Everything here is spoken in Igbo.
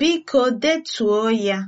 Biko detuo ya.